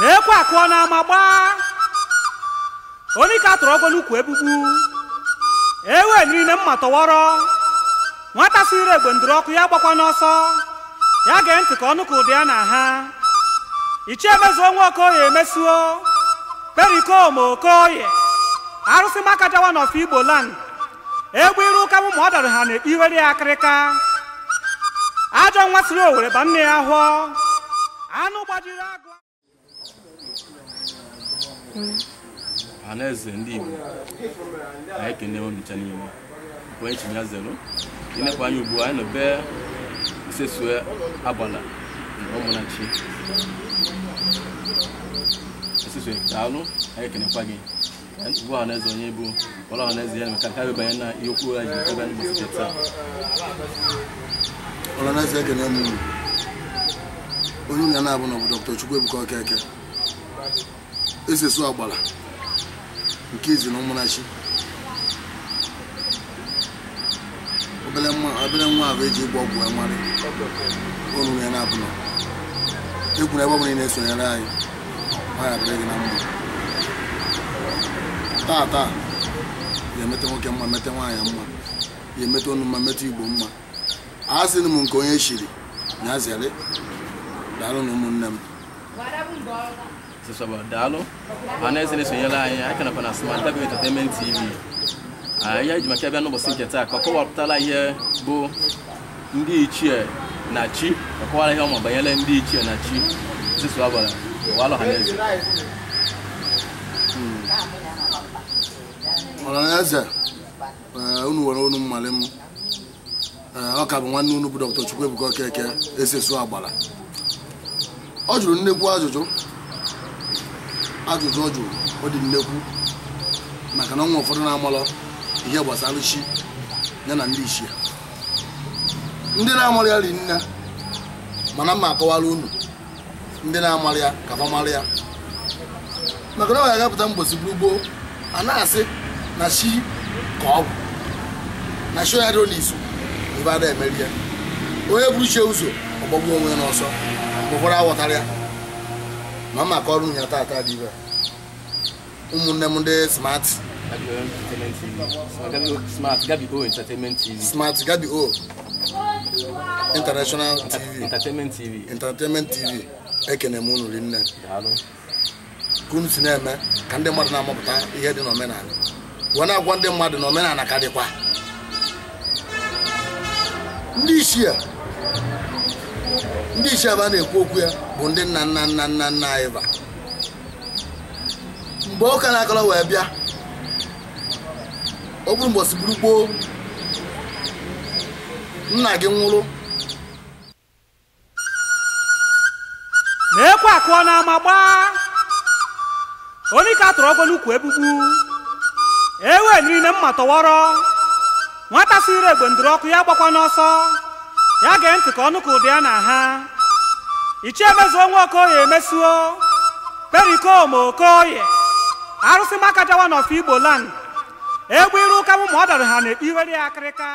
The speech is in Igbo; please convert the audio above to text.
na ekwe akụọ n'ama gbaa onye ka atụrụ ọgọ n'ukwu egbugbu ewe niile mma tọwọrọ nwata siri egbe ndụrụ ọkụ ya gbakwa n'ọsọ ya gee ntị ka ọnụ ka ụdị ya na ha ichie emezuo nwa okoye emesuo perikom okoye arụsị maka jawa n'ọfọ igbo land egwu iru ụka mụ ma ọ dara ha na-ekpe ya akịrịka ajọ nwa siri owere ba nne ya hụọ anụ gbajiri agụ ọhaneze ndị Igbo anyị ekene ncha niile onye chinya zelu imekwa anyị ugbu anyị nọbe isesue agbala na ụmụnachi daalụ anyị ekenekwa gị bụ ọhaneze onye bụ ọla na ya na maka karị banye na ihe okwu na ji ebe anyị gbasite taa ọhaneze ekene m onye ụnya na-abụ na ọ bụ esesu agbara nke ezi na ụmụnachi obere nwa ahụ eji ịgba ọgwụ amarị ọnụrụ ya na-abụna egwuru ebe ọbụla na-esonyere anyị nwaanyị adịrị gị na mma taa taa ga-emete nwoke mma mete nwaanyị mma ga-emete ọnụ mma mete igbo mma a sịrị m nke onye chiri na zere daalụ na ụmụnne m sosọba daalụ ma na-esonyela anyị aka nakwa na TV ihe ji maka bịa n'ụbọchị nke taa ka ọ kọwapụtala ihe bụ ndị ichie na chi ọkọwara ihe ọma banyere ndị ichie na chi Chisoba Ọhaneze Ọhaneze hmm. eh, unu nwere unu mmali m eh, ọ ka bụ nwanne unu bụ Dr. ebuka Okeke esi ọ jụrụ nnekwu ajụjụ ajụjụ ọ jụrụ ọ dị nnekwu maka na ọnwa ụfọdụ na-amalọ ihe gbasara chi ya na ndị ichie ya ndị na-amalị ya ri nne mana mma akọwara unu ndị na-amalị ya ka fa ya maka na ọ ga-agapụta mgbosi buru anaghasị a na-asị na chi ka ọ bụ na chi ya dịrị n'izu ebe a na-emeri ya onye buru chie ụzọ ọgbọgbu onwe n'ọsọ ụfọdụ aghọtara ya ma mma ka ọrụ ya taata dị ibe ụmụnne m ndị smart smart gabi o international tv entertainment tv ekene m unu rinne ka unu si na-eme ka ndị mmadụ na-amụpụta ihe dị n'omenala wee na-agwa ndị mmadụ na omenala ka dịkwa ndị ichie ndị ichie ebe a na-ekwu okwu ya bụ ndị nna nna nna nna nna anyị ba mgbe ụka na-akọrọ wee bịa o gburu mgbosi gburu gboo nna gị nwụrụ na-ekwe akụọ n'ama gbaa onye ka tụrụ ọgwọ n'ukwu egbugbu ewe niile mma tọwọrọ nwata siri egbe ndụrụ ọkụ ya gbakwa n'ọsọ ya gee ntị ka ọnụ ka ụdị ya na ha ichie emezuo nwa okoye emesuo okoye arụsị maka n'ọfụ igbo land egbe iru ụka m ma ọ dọrọ ha na-ekpughere ya akịrịka